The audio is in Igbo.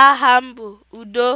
Aha m Udo.